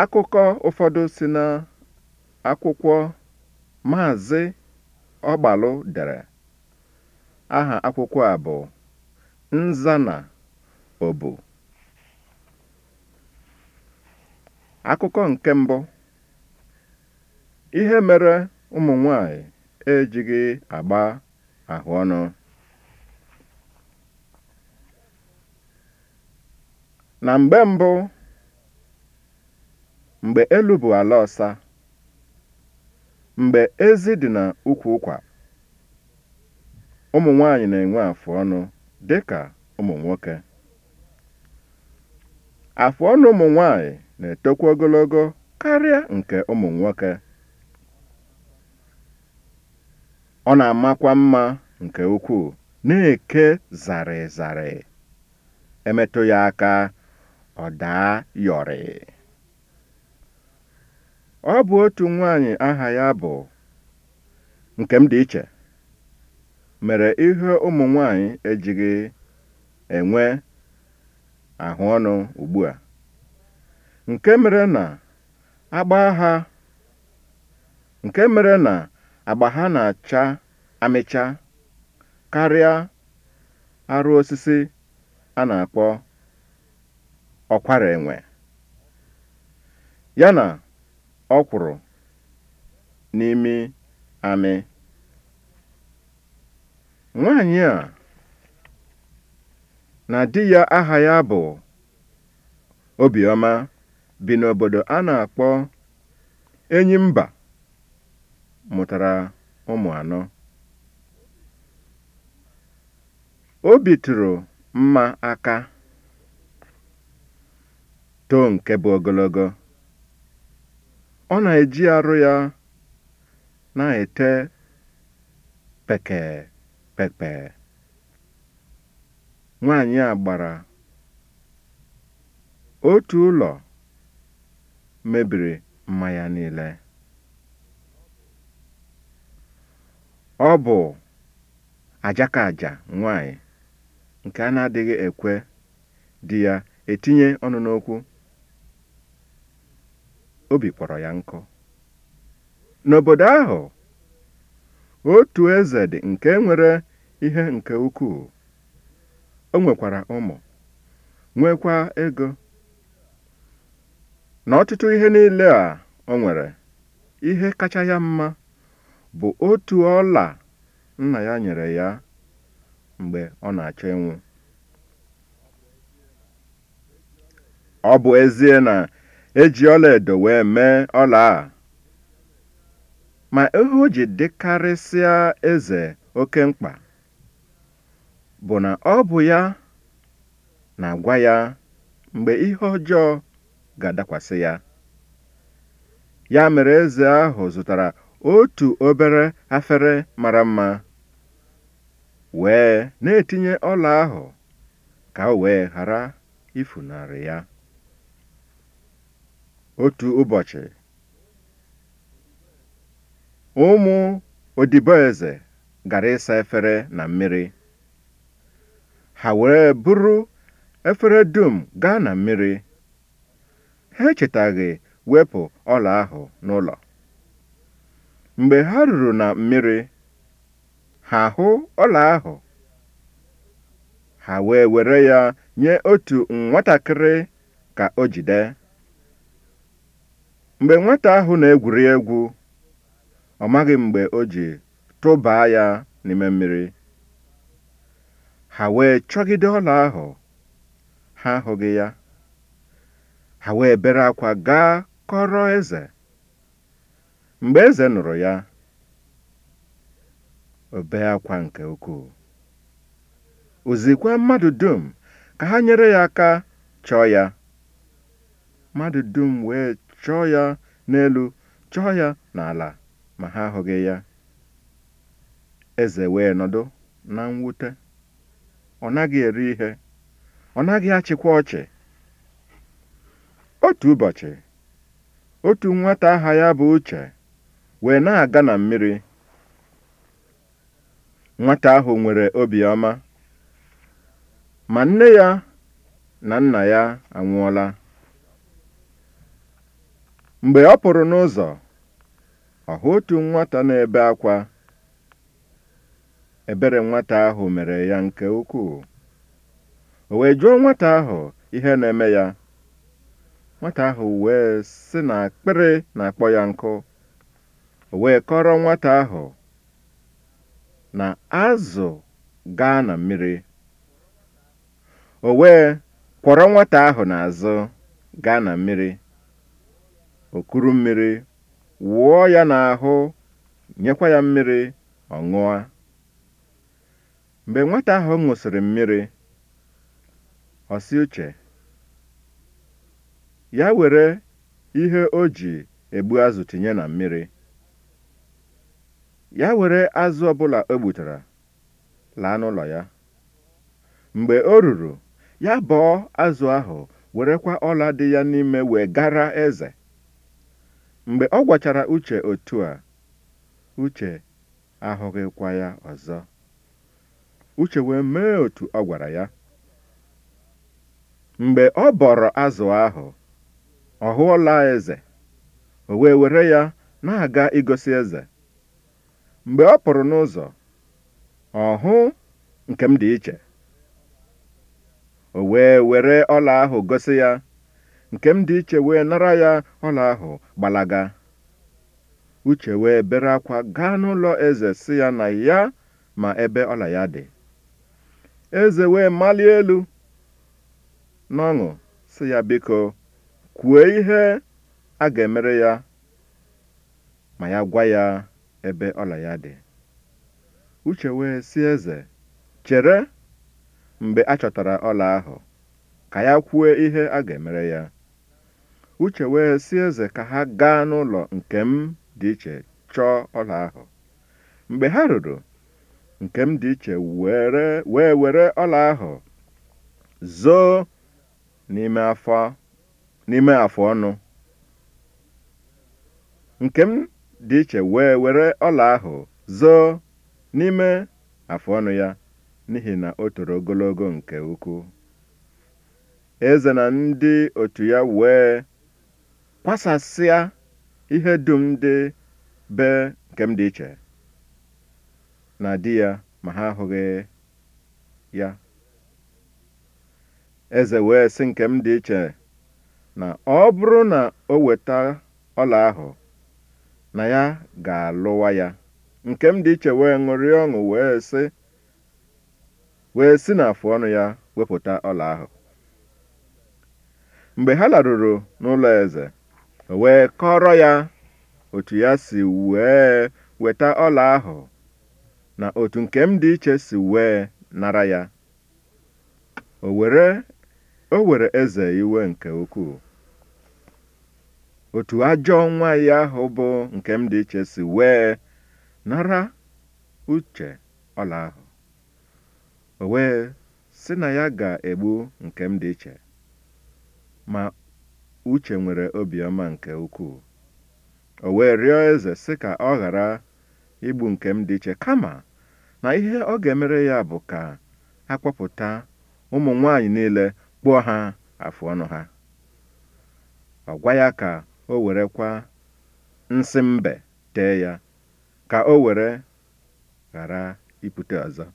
Akụkọ ụfọdụ si na akwụkwọ Maazị ọgbalụ dere. Aha akwụkwọ a bụ nza na Ọbụ". Akụkọ nke mbụ "Ihe mere ụmụ nwanyị ejighị agba ahụ ọnụ Na mgbe mbụ mgbe elu bụ ala ọsa mgbe ezi dị na ukwu ụkwa ụmụ nwanyị na-enwe afụ ọnụ dị ka ụmụ nwoke afụ ọnụ ụmụ nwanyị na-etokwa ogologo karịa nke ụmụ nwoke ọ na-amakwa mma nke ukwuu na-eke zarịzarị emetụ ya aka ọ daa yọrị Ọ bụ otu nwanyị aha ya bụ dị iche mere ihe ụmụ nwanyị ejighị enwe ahụ ọnụ ugbua, nke mere na agba ha na-acha amịcha karịa arụ osisi a na-akpọ ọkwara enwe, ya na Ọ ọkwụrụ n'ime amị. Nwaanyị a na di ya aha ya bụ Obiọma bi n'obodo a na-akpọ enyi mba mụtara ụmụ anọ. Obi tụrụ mma aka, too nke bụ ogologo. ọ na-eji arụ ya na-ete pekee pepe Nwaanyị a gbara otu ụlọ mebiri mmanya niile. Ọ bụ ajakaja nwaanyị nke a na-adịghị ekwe di ya etinye ọnụ n'okwu. obi kpọrọ ya nkụ n'obodo ahụ otu eze dị nke nwere ihe nke ukwuu o nwekwara ụmụ nwekwa ego na ọtụtụ ihe niile a o nwere ihe kacha ya mma bụ otu ọla nna ya nyere ya mgbe ọ na-achọ ịnwụ ọ bụ ezie na eji edo wee mee ọla a ma ihe o ji dịkarịsịa eze oke mkpa bụ na ọ bụ ya na-agwa ya mgbe ihe ọjọọ ga-adakwasị ya ya mere eze ahụ zụtara otu obere afere mara mma wee na-etinye ọla ahụ ka o wee ghara ifunarị ya otu ụbọchị ụmụ odiboeze gara ịsa efere na mmiri ha wee bụrụ efere dum gaa na mmiri ha echetaghị wepụ ọla ahụ n'ụlọ mgbe ha ruru na mmiri ha hụ ọla ahụ ha wee were ya nye otu nwatakịrị ka o jide mgbe nwata ahụ na-egwuri egwu ọ maghị mgbe o ji tụbaa ya n'ime mmiri ha wee chọgide ọla ahụ ha hụghị ya ha wee bere akwa gaa kọrọ eze mgbe eze nụrụ ya obe akwa nke ukwuu ozikwa mmadụ dum ka ha nyere ya aka chọọ ya mmadụ dum wee chọọ ya n'elu chọọ ya n'ala ma ha ahụghị ya eze wee nọdụ na mwute ọ naghị eri ihe ọ naghị achịkwa ọchị otu ụbọchị otu nwata aha ya bụ uche wee na-aga na mmiri nwata ahụ nwere obiọma ma nne ya na nna ya anwụọla Mgbe ọ pụrụ n'ụzọ, ọ otu nwata na-ebe akwa. Ebere nwata ahụ mere ya nke ukwuu. O wee jụọ nwata ahụ ihe na-eme ya. Nwata ahụ wee sị na akpịrị na-akpọ ya nkụ. O wee kọrọ nwata ahụ na azụ gaa na mmiri. O wee kwọrọ nwata ahụ n'azụ gaa na mmiri. okuru mmiri wụọ ya n'ahụ nyekwa ya mmiri ọ ṅụọ mgbe nwata ahụ ṅụsịrị mmiri ọsị uche ya were ihe o ji egbu azụ tinye na mmiri ya were azụ ọbụla o gbutara laa n'ụlọ ya mgbe o ruru ya bọọ azụ ahụ werekwa ọla dị ya n'ime wee gara eze Mgbe ọ gwachara Uche otu a, Uche ahụghịkwa ya ọzọ. Uche wee mee otu ọ gwara ya. Mgbe ọ bọrọ azụ ahụ, ọ hụọla eze. O wee were ya na-aga igosi eze. Mgbe ọ pụrụ n'ụzọ, ọ hụ nke m dị iche. O wee were ọla ahụ gosi ya nke m dị iche wee nara ya ọla ahụ gbalaga uche wee bere akwa gaa n'ụlọ eze si ya na ya ma ebe ọla ya dị eze wee malie elu n'ọṅụ si ya biko kwue ihe a ga-emere ya ma ya gwa ya ebe ọla ya dị uche wee si eze chere mgbe a chọtara ọla ahụ ka ya kwue ihe a ga-emere ya Uche wee sị eze ka ha gaa n'ụlọ nke m dị iche chọọ ọla ahụ. Mgbe ha ruru, nke m dị iche wee were ọla ahụ zoo n'ime afọ ọnụ. ọnụ ya n'ihi na o toro ogologo nke ukwuu. Eze na ndị otu ya wee kwasasịa ihe dum dị be nke m dị iche na di ya ma ha ahụghị ya eze wee sị nke m dị iche na ọ bụrụ na o weta ọla ahụ na ya ga-alụwa ya nke m dị iche wee ṅụrịa ọṅụ wee sị wee si afụ ọnụ ya wepụta ọla ahụ mgbe ha laruru n'ụlọ eze wee kọrọ ya otu ya si wee weta ọla ahụ na otu nke m dị iche si wee nara ya o were eze iwe nke ukwuu otu ajọ nwaanyị ahụ bụ nke m dị iche si wee nara uche ọla ahụ o wee sị na ya ga-egbu nke m dị iche ma Uche nwere obiọma nke ukwuu. O wee rịọ eze sị ka ọ ghara igbu nke m dị iche kama na ihe ọ ga-emere ya bụ ka akpọpụta ụmụ nwanyị niile kpụọ ha afụ ọnụ ha. Ọ gwa ya ka o werekwa nsị mbe tee ya ka o were ghara ipute ọzọ.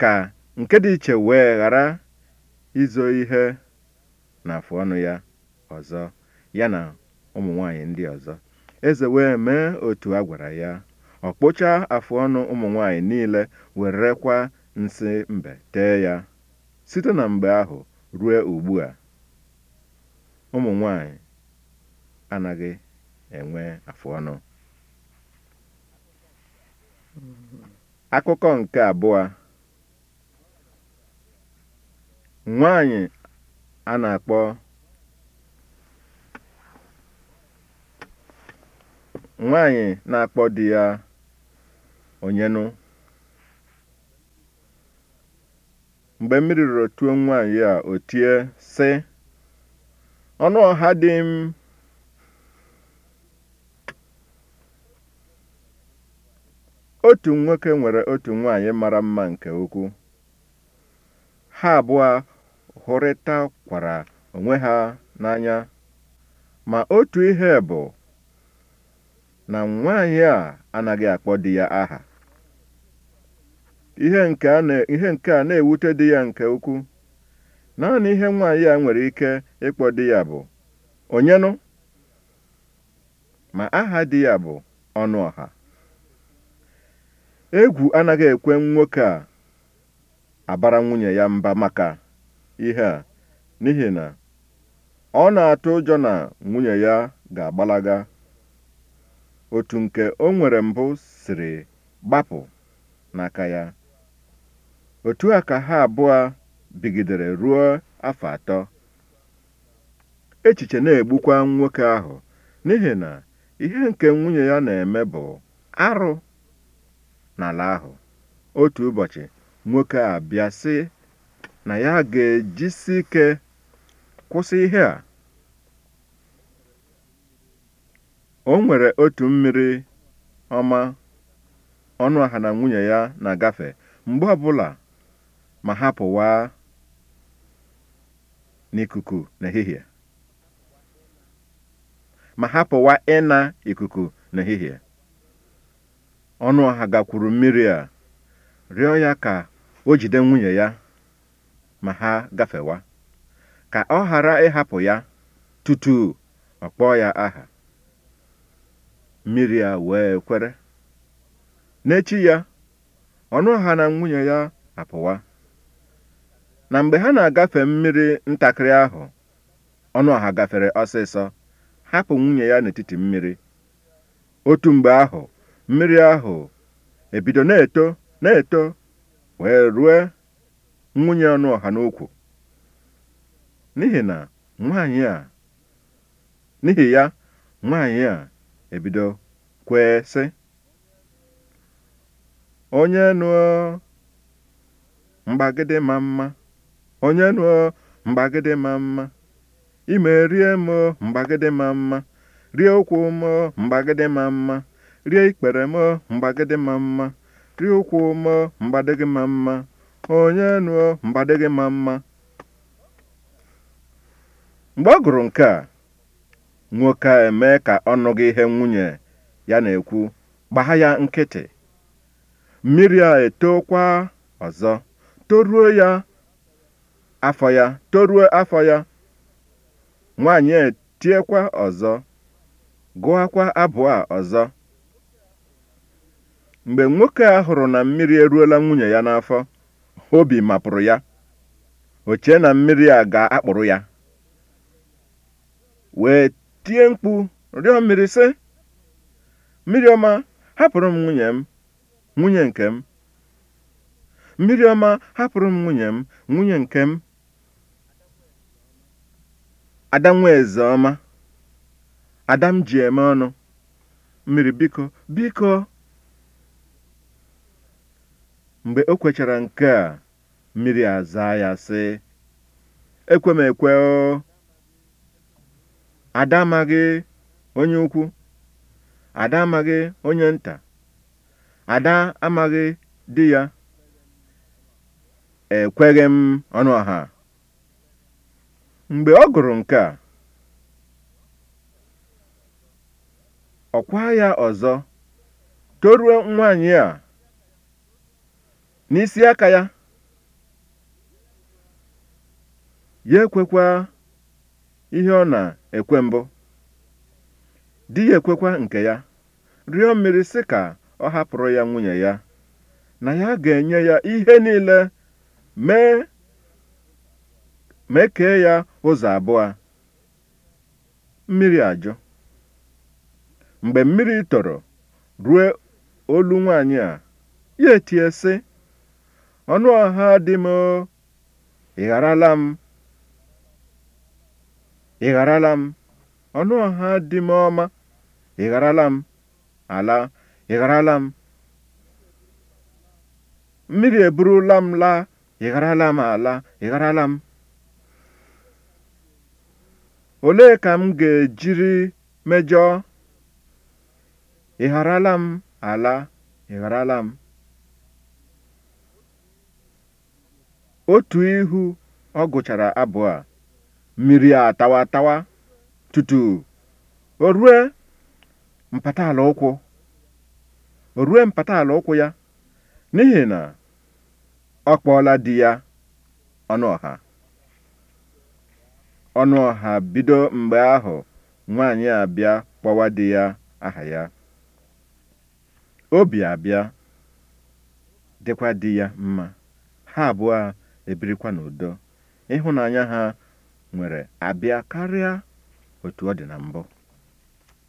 Ka nke dị iche wee ghara izo ihe na ọnụ ya ọzọ ya na ụmụ nwanyị ndị ọzọ eze wee mee otu a gwara ya ọ kpụchaa afụọnụ ụmụ nwanyị niile werekwa nsị mbe tee ya site na mgbe ahụ ruo ugbu a ụmụ nwanyị anaghị enwe ọnụ akụkọ nke abụọ nwaanyị a na-akpọ nwaanyị na-akpọ di ya onyenụ mgbe mmiri rụrụ tuo nwaanyị a o sị ọnụ ọha dị m otu nwoke nwere otu nwaanyị mara mma nke ukwu ha abụọ hụrịtakwara onwe ha n'anya ma otu ihe bụ na nwanyị a anaghị akpọ di ya aha ihe nke a na-ewute di ya nke ukwu naanị ihe nwaanyị a nwere ike ịkpọ di ya bụ onyenụ ma aha di ya bụ ọnụọha egwu anaghị ekwe nwoke a abara nwunye ya mba maka ihe a n'ihi na ọ na-atụ ụjọ na nwunye ya ga-agbalaga otu nke o nwere mbụ siri gbapụ n'aka ya otu a ka ha abụọ bigidere ruo afọ atọ echiche na-egbukwa nwoke ahụ n'ihi na ihe nke nwunye ya na-eme bụ arụ n'ala ahụ otu ụbọchị nwoke a bịa si na ya ga-ejisi ike kwụsị ihe a. O nwere otu mmiri ọma aha na nwunye ya na-agafe mgbe ọbụla ma ha pụwa n'ikuku n'ehihie ma ha ịna ikuku n'ehihie ọnụaha gakwuru mmiri a rịọ ya ka o jide nwunye ya ma ha gafewa ka ọ ghara ịhapụ ya tutu ọ kpọọ ya aha mmiri a wee kwere n'echi ya ọnụ ha na nwunye ya apụwa na mgbe ha na-agafe mmiri ntakịrị ahụ ọnụ ọha gafere ọsịsọ hapụ nwunye ya n'etiti mmiri otu mgbe ahụ mmiri ahụ ebido na-eto na-eto wee rue nwunye ọnụ ọha n'okwu n'ihi na nwanyị a n'ihi ya nwanyị a ebido kwee sị onye nụọ mgbagide ma mma onye nụọ mgbagide ma mma ime rie m mgbagide ma mma rie ụkwụ m mgbagide ma mma rie ikpere m mgbagide ma mma rie ụkwụ m mgbadege ma mma onye nụọ gị mma mma mgbe ọ gụrụ nke a nwoke a emee ka ọ nụghị ihe nwunye ya na-ekwu gbaa ya nkịtị mmiri a etokwa ọzọ toruo ya afọ ya toruo afọ ya nwaanyị etiekwa ọzọ gụọkwa kwa a ọzọ mgbe nwoke a hụrụ na mmiri eruola nwunye ya n'afọ obi mapụrụ ya o chee na mmiri a ga-akpụrụ ya wee tie mkpu rịọ mmiri sị mmiri ọma hapụrụ m nwunye m nwunye nke m mmiri ọma hapụrụ m nwunye m nwunye nke m ada nwaeze ọma ada m ji eme ọnụ mmiri biko biko Mgbe o kwechara nke a, mmiri azaa ya sị, ekwe m ekwe o. Ada amaghị onye ukwu, ada amaghị onye nta, ada amaghị di ya. Ekweghị m ọnụ ọha. Mgbe ọ gụrụ nke a, ọ ọkwa ya ọzọ toruo nwaanyị a n'isi aka ya ya ekwekwa ihe ọ na-ekwe mbụ di ya ekwekwa nke ya rịọ mmiri si ka ọ hapụrụ ya nwunye ya na ya ga-enye ya ihe niile mee mee kee ya ụzọ abụọ mmiri ajọ mgbe mmiri toro ruo olu nwaanyị a ya etie sị ọnụ ọha dị m ị gharala m ị gharala m ọnụ ọha dị m ọma ị lam m ala ị lam m mmiri eburula m laa ị m ala ị lam m olee ka m ga-ejiri mejọọ ị m ala ị lam. m otu ihu ọ gụchara abụ a mmiri a tawa tawa tutu o rue mpataala ụkwụ o rue mpataala ụkwụ ya n'ihi na ọ kpọọla di ya ọnụ ọha ọnụ ọha bido mgbe ahụ nwaanyị abịa kpọwa di ya aha ya obi abịa dịkwa di ya mma ha abụọ ebirikwa n'udo ịhụnanya ha nwere abịa karịa otu ọ dị na mbụ